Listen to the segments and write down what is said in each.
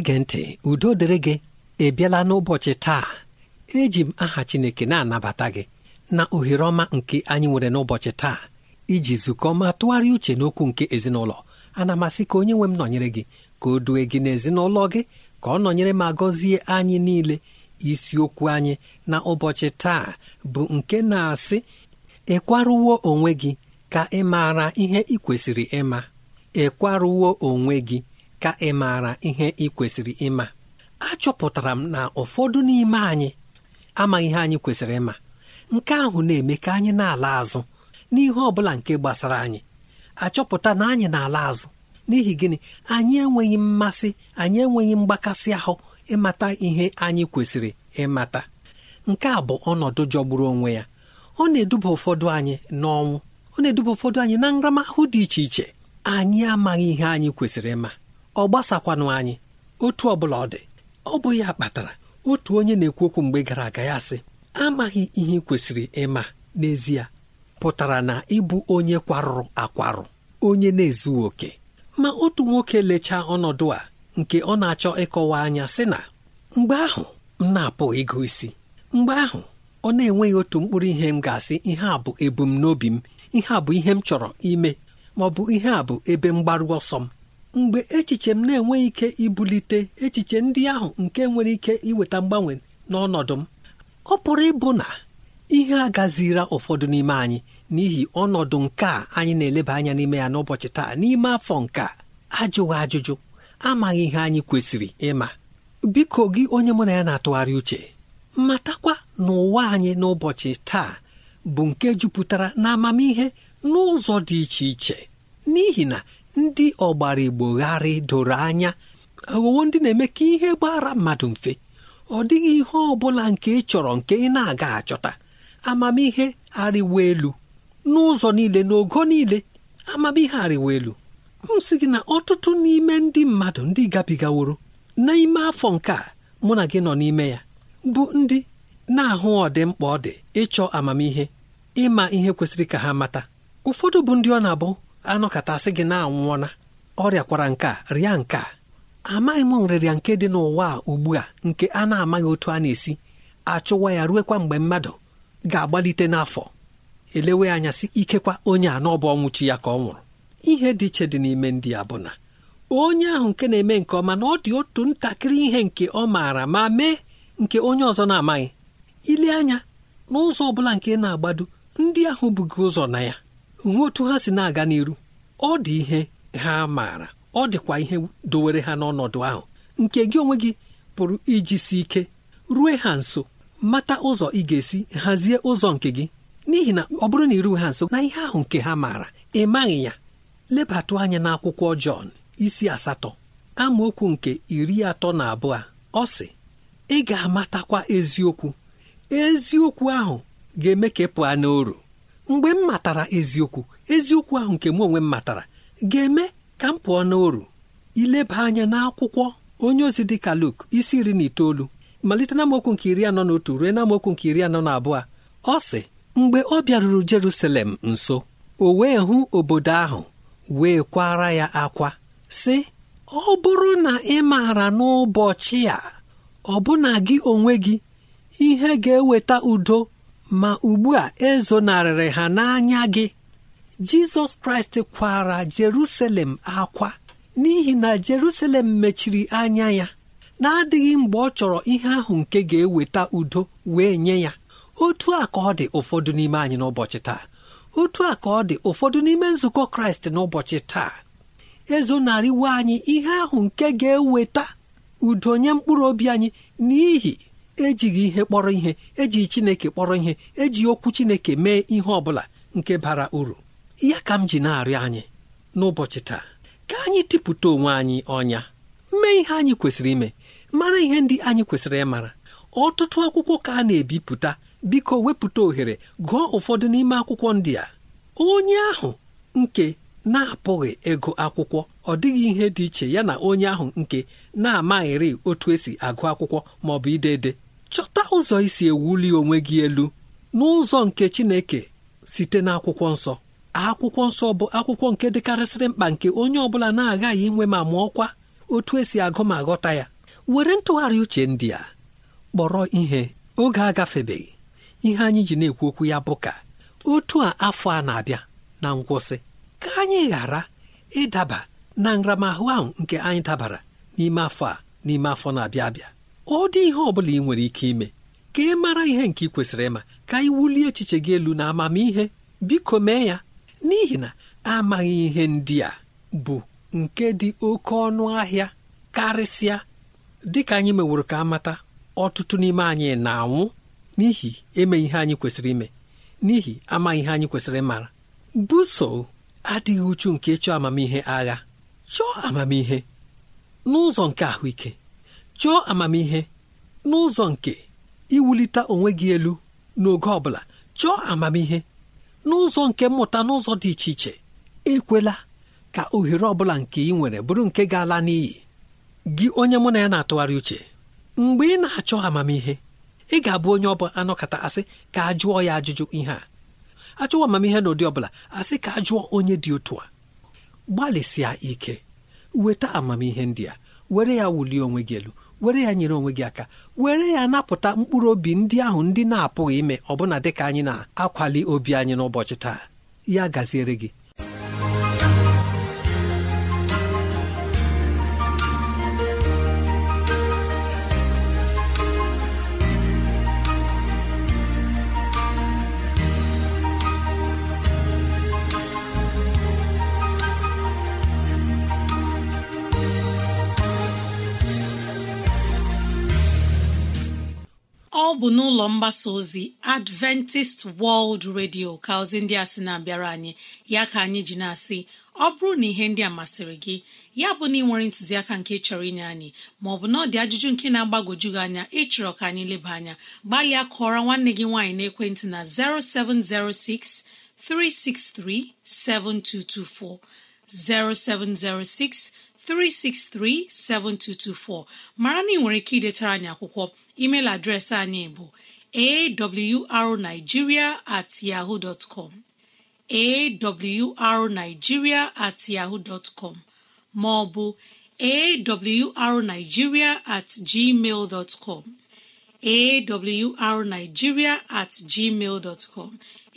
na-ege ntị udo dịrị gị ebiala n'ụbọchị taa eji m aha Chineke na-anabata gị na ohere ọma nke anyị nwere n'ụbọchị taa iji zukọ ma tụgharịa uche n'okwu nke ezinụlọ ana masị ka onye nwe m nọnyere gị ka o due gị n'ezinụlọ gị ka ọ nọnyere ma gọzie anyị niile isiokwu anyị na ụbọchị taa bụ nke na-asị ịkwarụwo onwe gị ka ị maara ihe ị kwesịrị ịma ịkwarụwo onwe gị ka ị maara ihe ị kwesịrị ịma achọpụtara m na ụfọdụ n'ime anyị amaghị ihe anyị kwesịrị ịma nke ahụ na-eme ka anyị na-ala azụ n'ihe ọ bụla nke gbasara anyị achọpụta na anyị na-ala azụ n'ihi gịnị anyị enweghị mmasị anyị enweghị mgbakasị ahụ ịmata ihe anyị kwesịrị ịmata nke a bụ ọnọdụ jọgburu onwe ya ọ na-eduba ụfọdụ anyị n'ọnwụ ọ na-eduba ụfọdụ anyị na nramahụ dị iche iche anyị amaghị ihe anyị kwesịrị ịma ọ gbasakwanụ anyị otu ọ bụla ọ dị ọ bụ ya kpatara otu onye na-ekwu okwu mgbe gara aga ya sị amaghị ihe kwesịrị ịma n'ezie pụtara na ịbụ onye kwarụrụ akwarụ onye na-ezughị oke ma otu nwoke lechaa ọnọdụ a nke ọ na-achọ ịkọwa anya sị na mgbe ahụ m na-apụ ịgụ isi mgbe ahụ ọ na-enweghị otu mkpụrụ ihe m ga-asị ihe a bụ ebumnobi m ihe a bụ ihe m chọrọ ime ma ọ bụ ihe a bụ ebe mgbaru ọsọ m mgbe echiche m na-enweghị ike ibulite echiche ndị ahụ nke nwere ike iweta mgbanwe n'ọnọdụ m ọ pụrụ ịbụ na ihe agazira ụfọdụ n'ime anyị n'ihi ọnọdụ nke a anyị na-eleba anya n'ime ya n'ụbọchị taa n'ime afọ nke ajụghị ajụjụ amaghị ihe anyị kwesịrị ịma biko gị onye mụ na ya na-atụgharị uche matakwa n'ụwa anyị n'ụbọchị taa bụ nke jupụtara na amamihe n'ụzọ dị iche iche n'ihi na ndị ọgbara igbo gharị doro anya aghụghọ ndị na-eme ka ihe gbara mmadụ mfe ọ dịghị ihe ọ bụla nke ị chọrọ nke ị na-aga achọta amamihe arịwa elu n'ụzọ niile n'ogo niile amamihe arịwa elu m sị gị na ọtụtụ n'ime ndị mmadụ ndị gabigaworo n'ime afọ nke a mụ na gị nọ n'ime ya bụ ndị na-ahụ ọdịmkpa ọ dị ịchọ amamihe ịma ihe kwesịrị ka ha mata ụfọdụ bụ ndị ọ na-abụ anọkọtasị gị na-anwụọna ọrịa kwara nke a rịa nke a amaghị m nrịrịa nke dị n'ụwa a ugbu a nke a na-amaghị otu a na-esi achụwa ya ruekwa mgbe mmadụ ga-agbalite n'afọ elewe anya sị ikekwa onye a n'ọbụ ọnwụchi ya ka ọ nwụrụ ihe dị iche dị n'ime ndị a bụ na onye ahụ nke na-eme nke ọma na ọ dị otu ntakịrị ihe nke ọ maara ma mee nke onye ọzọ na-amaghị ile anya n'ụzọ ọ bụla nke na-agbado ndị ahụ bughị ụzọ na ya hụ otu ha si na-aga n'iru ọ dị ihe ha maara ọ dịkwa ihe dowere ha n'ọnọdụ ahụ nke gị onwe gị pụrụ iji si ike rue ha nso mata ụzọ ị ga-esi hazie ụzọ nke gị n'ihi na ọ bụrụ na iru ha nso na ihe ahụ nke ha maara ị maghị ya lebatụ anya n'akwụkwọ Jọn isi asatọ amaokwu nke iri atọ na abụọ ọ sị ị ga-amatakwa eziokwu eziokwu ahụ ga-eme ka ị pụọ n'oru mgbe m matara eziokwu eziokwu ahụ nke m onwe m matara ga-eme ka m pụọ n'oru ileba anya n'akwụkwọ onye ozi dị ka Luk isi iri na itoolu malite na mokwu nke iri anọ na otu ruo na mokwu nke iri anọ na abụọ ọ sị mgbe ọ bịaruru Jerusalem nso o wee hụ obodo ahụ wee kwara ya akwa sị ọ bụrụ na ị maara n'ụbọchị a ọ bụna gị onwe gị ihe ga-eweta udo ma ugbu a ezonarịrị ha n'anya gị jizọs kraịst kwara jerusalem akwa n'ihi na jerusalem mechiri anya ya na-adịghị mgbe ọ chọrọ ihe ahụ nke ga-eweta udo wee nye ya otu a ka ọ dị ụfọdụ n'ime anyị n'ụbọchị taa otu a ka ọ dị ụfọdụ n'ime nzukọ kraịst n'ụbọchị taa ezonarịwe anyị ihe ahụ nke ga-eweta udo nye mkpụrụ obi anyị n'ihi ejighị ihe kpọrọ ihe ejighị chineke kpọrọ ihe eji okwu chineke mee ihe ọ bụla nke bara uru ya ka m ji na-arịọ anyị n'ụbọchị taa ka anyị tipụta onwe anyị ọnya mee ihe anyị kwesịrị ime mara ihe ndị anyị kwesịrị ịmara ọtụtụ akwụkwọ ka a na-ebipụta biko wepụta ohere gụọ ụfọdụ n'ime akwụkwọ ndị a onye ahụ nke na-apụghị ego akwụkwọ ọ dịghị ihe dị iche ya na onye ahụ nke na-amaghịrị otu esi agụ akwụkwọ ma ọ bụ ide ede chọta ụzọ isi ewuli onwe gị elu n'ụzọ nke Chineke site n'akwụkwọ nsọ akwụkwọ nsọ bụ akwụkwọ nke dịkarịsịrị mkpa nke onye ọ bụla na-agaghị inwe ma mụọkwa otu esi agụ ma ghọta ya were ntụgharị uche ndị a kpọrọ ihe oge agafebeghị ihe anyị ji na-ekwu okwu ya bụ ka otu a afọ a na-abịa na nkwụsị ka anyị ghara ịdaba na nramahụ ahụ nke anyị dabara n'ime afọ a n'ime afọ na-abịa abịa ọ dị ihe ọ bụla ị nwere ike ime ka ị mara ihe nke ị kwesịrị ịma ka ị wulie echiche gị elu na amamihe biko mee ya n'ihi na amaghị ihe ndị a bụ nke dị oke ọnụ ahịa karịsịa dịka anyị meworo ka amata ọtụtụ n'ime anyị na-anwụ n'ihi emeghị ihe anyị kwesịrị ime n'ihi amaghị ihe anyị kwesịrị ịmara buso adịghị uchu nke ịchọ amamihe agha chọọ amamihe n'ụzọ nke ahụike chọọ amamihe n'ụzọ nke iwulite onwe gị elu n'oge ọ bụla chọọ amamihe n'ụzọ nke mmụta n'ụzọ dị iche iche ekwela ka ohere ọ bụla nke ị nwere bụrụ nke ga-ala n'iyi gị onye mụ na ya na-atụgharị uche mgbe ị na-achọ amamihe ị ga-abụ onye ọ bụla anọkọta asị ka a jụọ ya ajụjụ ihe a achọwa amamihe na ụdị ọbụla asị ka a onye dị otu a gbalịsịa ike weta amamihe ndị a were ya wulie onwe gị elu were ya nyere onwe gị aka were ya napụta mkpụrụ obi ndị ahụ ndị na-apụghị ime ọbụna dịka anyị na-akwali obi anyị n'ụbọchị taa ya gaziere gị ọ bụ n'ụlọ mgbasa ozi Adventist World Radio ka ozi ndị a sị na-abịara anyị ya ka anyị ji na-asị ọ bụrụ na ihe ndị a masịrị gị ya bụ na ị nwere ntụziaka nke chọrọ inye anyị maọbụ na ọ dị ajụjụ nke na-agbagwoju gị anya ịchọrọ ka anyị leba anya gbalịa kọọrọ nwanne gị nwaanyị na 0706 363 7224 0706 363-7224 mara na ị nwere ike idetara anyị akwụkwọ email adreesị anyị bụ awrnigeria at at com ma ọ bụ at gmail com at gmail com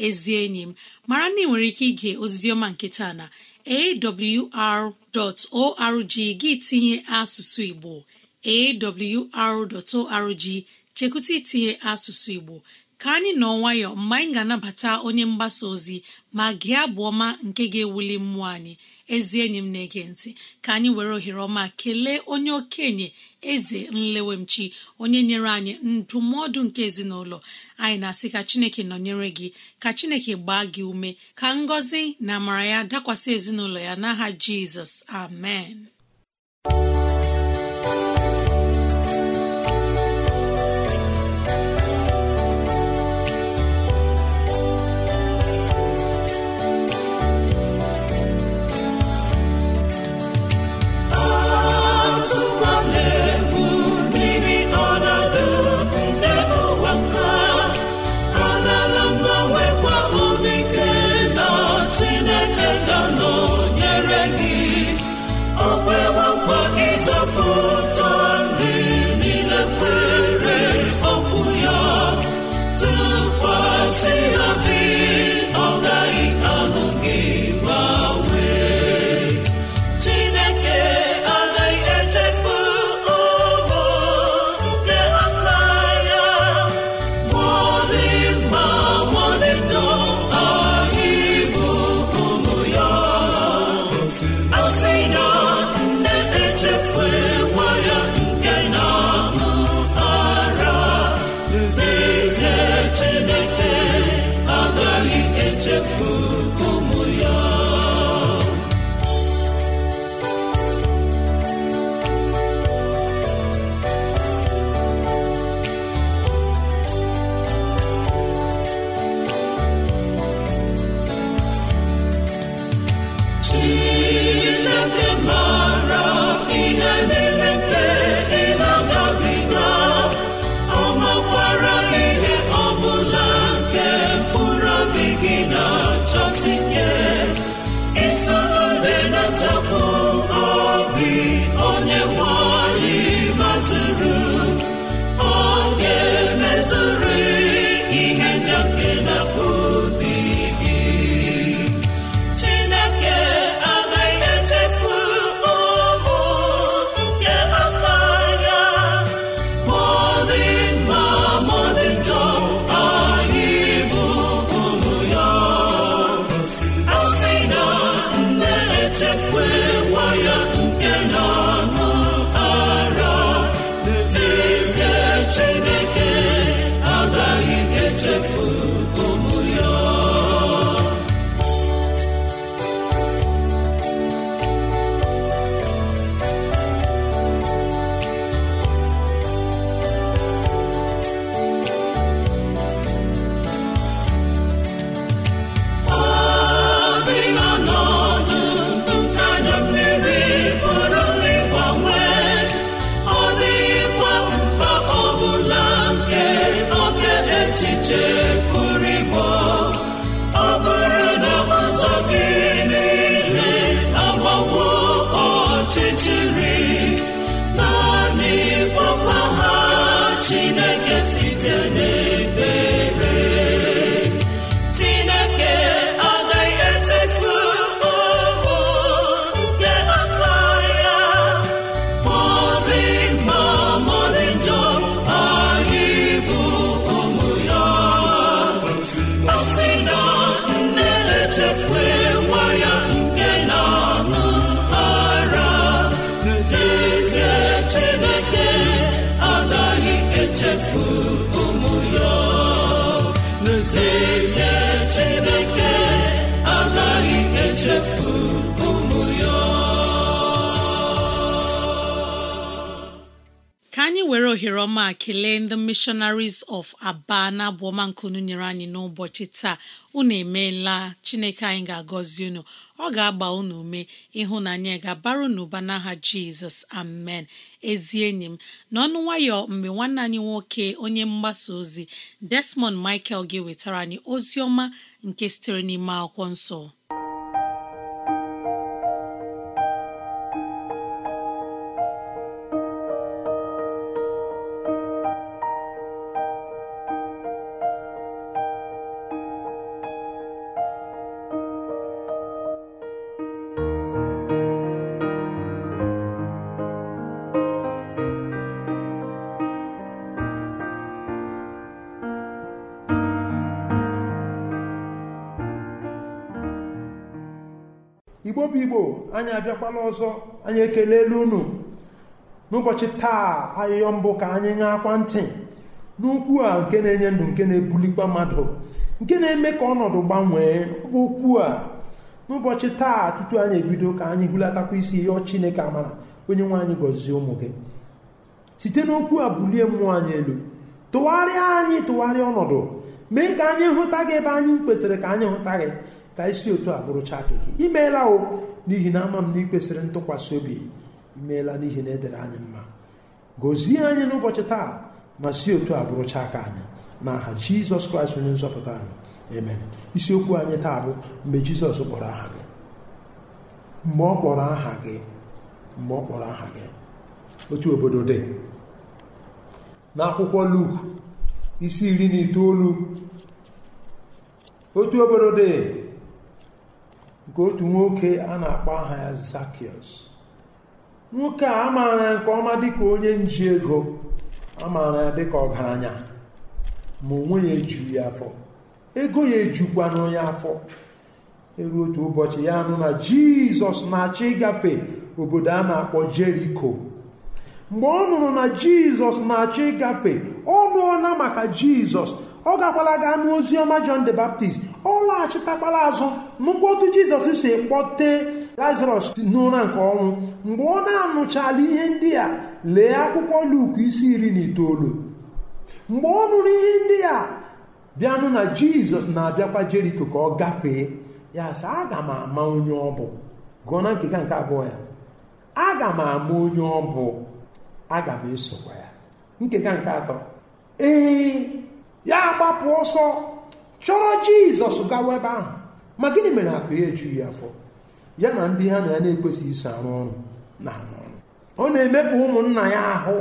ezi enyi m mara na ị nwere ike ige ozizioma nke taa na awr.org gị tinye asụsụ Igbo awr.org chekwụta itinye asụsụ Igbo ka anyị nọ nwayọ mgbe anyị ga-anabata onye mgbasa ozi ma gị abụ ọma nke ga-ewuli mmụọ anyị ezi enyi m na-ege ntị ka anyị were ohere ọma kelee onye okenye eze nlewemchi onye nyere anyị ndụmọdụ nke ezinụlọ anyị na-asị ka chineke nọnyere gị ka chineke gbaa gị ume ka ngọzi na amara ya dakwasị ezinụlọ ya n'aha jizọs amen O nwa nkwa ịzọpụ love. obiọra ọma kelee ndị missionaries of aba na abụọma nke unu nyere anyị n'ụbọchị taa unu emeela chineke anyị ga-agọzi unu ọ ga-agba unu ume ịhụnanya ga-abara unu n'aha jizọs amen ezi enyi m n'ọnụ nwayọ mgbe nwanne anyị nwoke onye mgbasa ozi desmond michael ga-ewetara anyị ozi ọma nke sitere n'ime akwụkwọ nsọ anyị abịakwala ọzọ anyị ekelela unu n'ụbọchị taa ahịhịọ mbụ ka anyị ṅaakwa ntị n'ukwu a nke na-enye ndụ nke na-ebulikwa mmadụ nke na-eme ka ọnọdụ gbanwee bụ okwu a n'ụbọchị taa tutu anyị ebido ka anyị hụlatakwa isi ịyọ Chineke amara onye nwe anyị gọzie ụmụ gị site n'okwu a bulie mmụọ anyị elu tụgharịa anyị tụgharịa ọnọdụ mee ka anyị hụta gị ebe anyị kwesịrị ka anyị hụta gị ka isi otu a bụrụcha gị imeela o n'ihi na ama m na ị ntụkwasị obi imeela n'ihi na edere anyị mma gọzie anyị n'ụbọchị taa ma si otu a bụrụcha aka anyị na aha jizọs kraịst onye nzọpụta anyị eme isiokwu anyị taa bụ mgbe jizọs kpọrọ aha gị mgbe ọ kpọrọ aha gị mgbe ọ kpọrọ aha gị otu obodo dị n'akwụkwọ Luk isi iri na itoolu otu obodo dị nke otu nwoke a na-akpọ aha ya zakius nwoke a amaara ya nke ọma dịka onye nji ego amaara ya dịka ọgaranya ma onwe ya ya afọ ego ya ejukwa onye afọ eru otu ụbọchị ya nụ na Jizọs na-achọ ịgafe obodo a na-akpọ Jeriko mgbe ọ nụrụ na Jizọs na-achọ ịgafe ọ nụọla maka Jizọs ọ gakwala gaa n'ozi ọma John the Baptist ọ laghachitakpala azụ n'ụkpọtụ Jizọs si kpọte Lazarus n'ụra nke ọnwụ mgbe ọ na-anụchala ihe ndị a lee akwụkwọ Luk isi iri na itoolu mgbe ọ nụrụ ihe ndị a bịanụ na Jizọs na-abịakwa Jeriko ka ọ gafee ya sị aga m ama onye ọ bụ gụọ na nkega nke abụọ ya aga m ama onye ọ bụ aga m esokwa ya nkega nke atọ ee ya gbapụ ọsọ chọrọ jizọs gawa ebe ahụ ma gịnị mere akụ ya ejughị afọ ya na ndị ha na ya na-ekwesịghị iso arụ ọrụ na ọ na-emekpa ụmụnna ya ahụ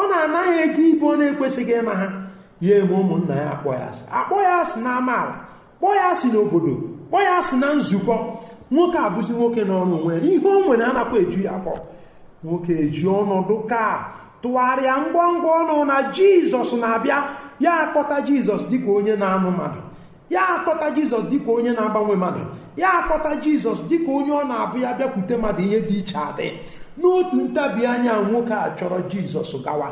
ọ na-anaghị ego ibu ọ na-ekwesịghị ịma ha ya eme ụmụnna ya akpọ ya asị akpọ ya asị na amaala kpọọ ya asị n'obodo kpọọ ya asị na nzukọ nwoke abụzi nwoke n'ọrụ onwe ya ihe o nwere anakwa eju ya afọ nwoke eji ọnọdụ ka tụgharịa ngwa ngwa ọnụ na jizọs na-abịa ya akpọta jizọs dịka onye na-anụ mmadụ ya akpọta jizọs dịka onye na-agbanwe mmadụ ya akpọta jizọs dịka onye ọ na-abụ ya bịakwute mmadụ ihe dị iche adị n'otu ntabi anya nwoke a chọrọ jizọs gawa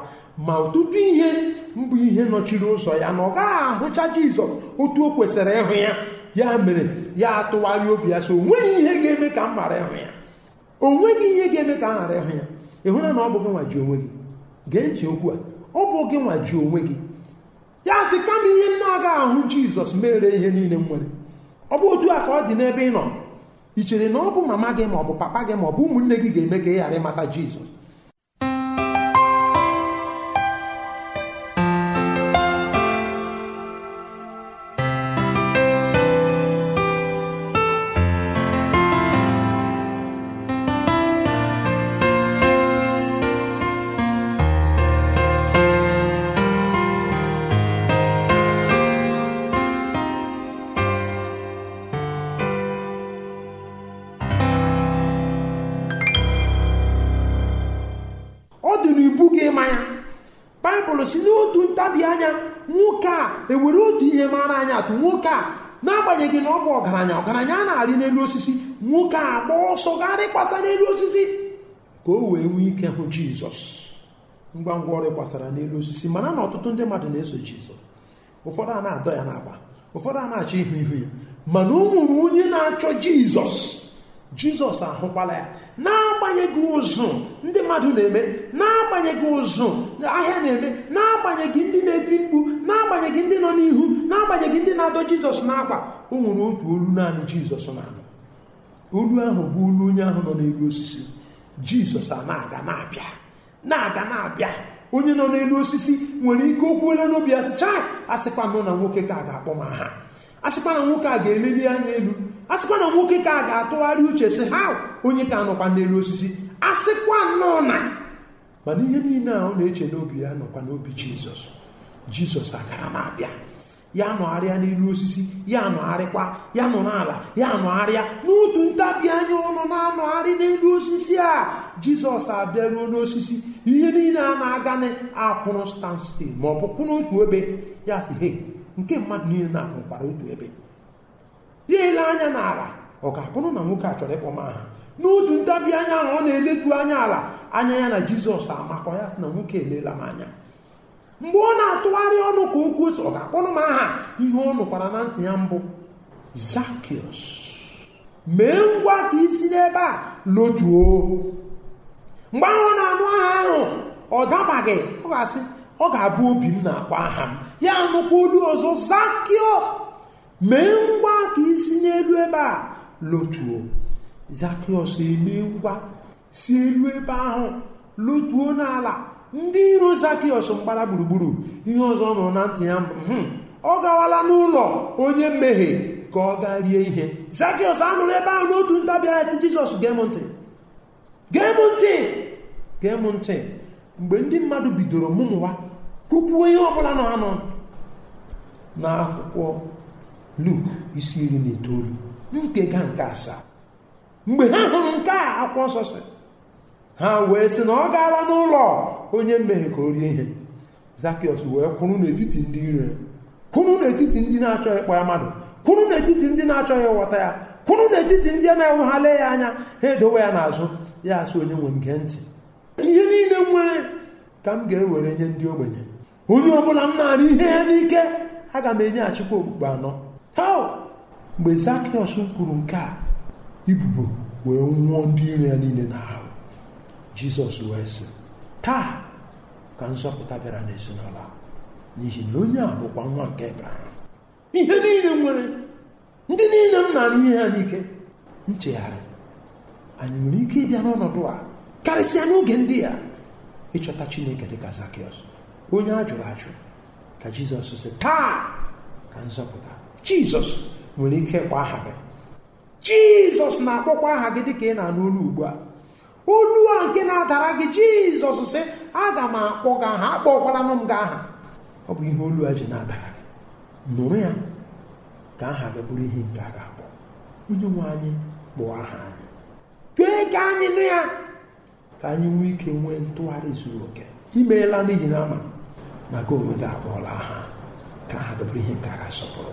ma ọtụtụ ihe mbụ ihe nọchiri ụzọ ya na ọ gaghị ahụcha jizọs otu o kwesịrị ịhụ ya ya mere ya atụgharị obi ya so o ihe ga-eme ka m ghara ịhụ ya o nweghị ihe ga-eme ka m ghara ịhụ ya ịhụra na ọ bụ gị nwa ji onwe gị gee ntị okwu a ọ bụ gị nwa ji onwe gị ya sị kama ihe m na-agaghị ahụ jizọs mere ihe niile m nwere ọ bụ otu a ka ọ dị n'ebe ị nọ ị chere na ọ bụ mama gị ma ọ bụ papa gị ma ọ bụ ụmụnne gị ga-eme ka ị ghara ịmata jizọs anya atụ nwoke a n'agbanyeghị na ọ bụ ọgaranya ọgaranya a na-arị n'elu osisi nwoke a gba ọsọ ga kpasa n'elu osisi ka o wee nwee ike hụ jizọs ngwa ngwa ọrụ gbasara n'elu osisi mana na ọtụtụ ndị mmadụ na-eso jizọs ụfọdụ a na-adọ ya n'akpa ụfọdụ a na-achọ ihu ihu ya mana o onye na-achọ jizọs jizọs ahụkwala ya na-agbanyeghị ụzụ ndị mmadụ na-eme na-agbanyeghị ụzụ ahịa na-eme na-agbanyeghị ndị na ebi mkpu na-agbanyeghị ndị nọ n'ihu na-agbanyeghị ndị na-adọ jizọs n'akwa o nwere otu olu naanị jizọs na olu ahụ bụ olu onye ahụ nọ n'elu osisi jizọs a na-aga na-abịa na-aga na-abịa onye nọ n'elu osisi nwere ike okwuola n'obi asịcha asịkwa nọ na nwoke ka a ga-akpọ m aha asịkwa na nwoke a ga-eleli anya elu a sịkwa na nwoke ka a ga-atụgharị uche sị ha onye ka nọkwa n'elu osisi a sịkwa nnọọ na mana ihe niile a ọ na-eche n'obi ya nọkwa n'obi jizọs jizọs agara m abịa ya nọgharịa n'elu osisi ya nọgharịkwa ya nọ n'ala ya nọgharịa n'otu ntabi anya ọnụ na-anọgharị n'elu osisi a jizọs abịaruo n'osisi ihe niile a na-aga akwụrụ stanstil ma ọ bụ n'otu ebe ya sị he nke mmadụ niile na-akwụkwara otu ebe ya ele anya n'ala ọ ga-abụ na nwoke a chọrọ ịkpọm aha n'otu ntabi anya ahụ ọ na-eletu anya ala anya ya na jizọs amakọ ya sị na nwoke elela m anya mgbe ọ na-atụgharị ọnụ ka okwu ọ ga-akpọrọ m aha ihe ọ nụkwara na ntị ya mbụ zakiọs mee ngwa ka isi n'ebe a lotuo mgbe ahụ ọ na-anụ aha ahụ ọ dabaghị ọ ga-asị ọ ga-abụ obi m na-akpọ aha m ya nụkwa olu ọzọ zakio. mee ngwa ka isi n'elu ebe a lotuo zakịọs eme ngwa si elu ebe ahụ lotuo n'ala ndị iro zakịọs mgbara gburugburu ihe ọzọ nọ na ntị ya hmm. ọ gawala n'ụlọ onye mmehie ka ọ gaa rie ihe zakịọs anụrụ ebe ahụ n'otu ntabi anya jizọs gem ntị gem ntị ntị mgbe ndị mmadụ bidoro mụmụwa kwukwuo ihe ọbụla nọ anọ n'akwụkwọ luk isi iri na itoolu ga nke asaa mgbe ha hụrụ nke a akwụkwọ nsọ si ha wee sị na ọ gaala n'ụlọ onye mmehie ka o rie ihe zakịọs wee kwụrụ n'etiti ndị ire kwụrụ n'etiti ndị na-achọghị ịkpọ ya mmadụ kwụrụ n'etiti ndị na-achọghị ịghọta ya kwụrụ n'etiti ndị na-enwe ya anya ha edowe ya n'azụ ya asị onye nwe m gee ntị ihe niile m nwere ka m ga-ewere nye ndị ogbenye onye ọ bụla m na ihe ya n'ike aga m enyeghachikwa okpukpe anọ mgbe zakriọs kwuru nke a ibubo wee nwụọ ndị iro ya niile n'ahụ jizọs wee sị taa ka nzọpụta bịara n'ezinụlọ n'ihi na onye a bụkwa nwa nke ebraham ihe niile nwere ndị niile m na-arụ ihe ya n'ike nchegharị anyị nwere ike ịbịa n'ọnọdụ a karịsịa n'oge ndị a ịchọta chineke dịka zakriọs onye a jụrụ ajụ ka jizọs sị taa ka nzọpụta jizọs nwere ike kwa aha gị jizọs na-akpọkwa aha gị dịka ị na-anụ olu ugbu a olu a nke na-adara gị jizọs sị aga m akpọ gị aha akpọkwaranụ m gị aha ọ bụ ihe olu a ji na-adara gị nụrụ ya ka aha gị bụrụ ihe nke a ga-akpọ onye nwe anyị kpụọ aha anyị tee ka anyị nụ ya ka anyị nwee ike nwee ntụgharị zuru oke imeela n'ihi na ama na gị onwe gị akpọọla aha ka aha gị bụrụ ihe nke a ga-asọpụrụ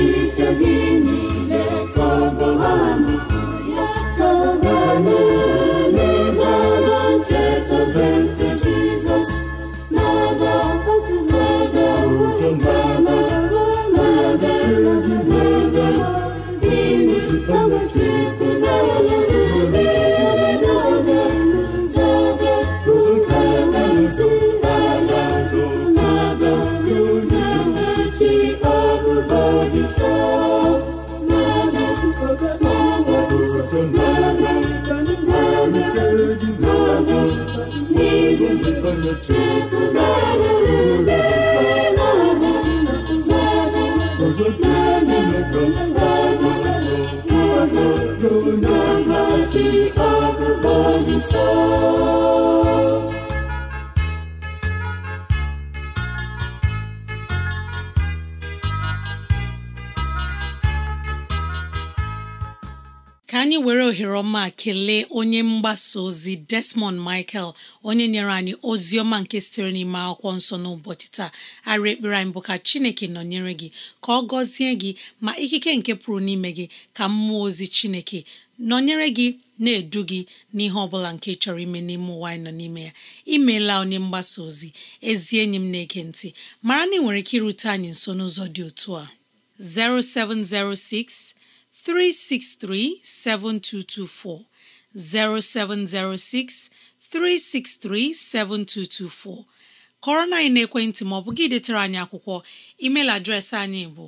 echiche gị niile tọgbọ ha mgbasa ozi Desmond Michael onye nyere anyị ozi ọma nke sitere n'ime akwụkwọ nsọ n'ụbọchị taa arị ekpere anyị bụ ka Chineke nọnyere gị ka ọ gọzie gị ma ikike nke pụrụ n'ime gị ka mmụọ ozi Chineke nọnyere gị na-edu gị n'ihe ọbụla nke chọrọ ime n'ime ụwa anyị nọ n'ime ya imeela onye mgbasa ozi ezi enyi m na-ege ntị mara na ị nwere ike irute anyị nso n'ụzọ dị otu a 0706 363 7224 0706 363 7224 kọrọ na anyị n'ekwentị ma ọ bụ gị detere anyị akwụkwọ email adreesị anyị bụ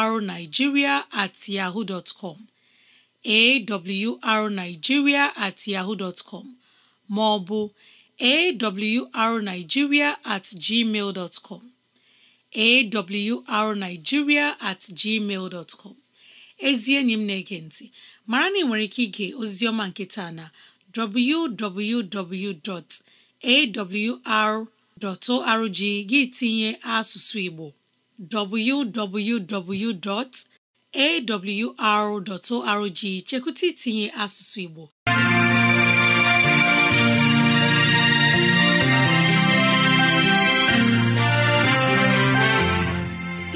awrnigeria at yahoo com at com ma ọ bụ awrnigeria at gmail com awrnigeria at gmail com ezi enyi m na-ege ntị mara na ị nwere ike ige oziziọma nke taa na www.awr.org gị tinye asụsụ Igbo www.awr.org chekwụta itinye asụsụ Igbo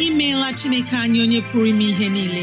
imeela Chineke anyị onye pụrụ ime ihe niile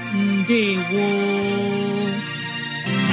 ndewo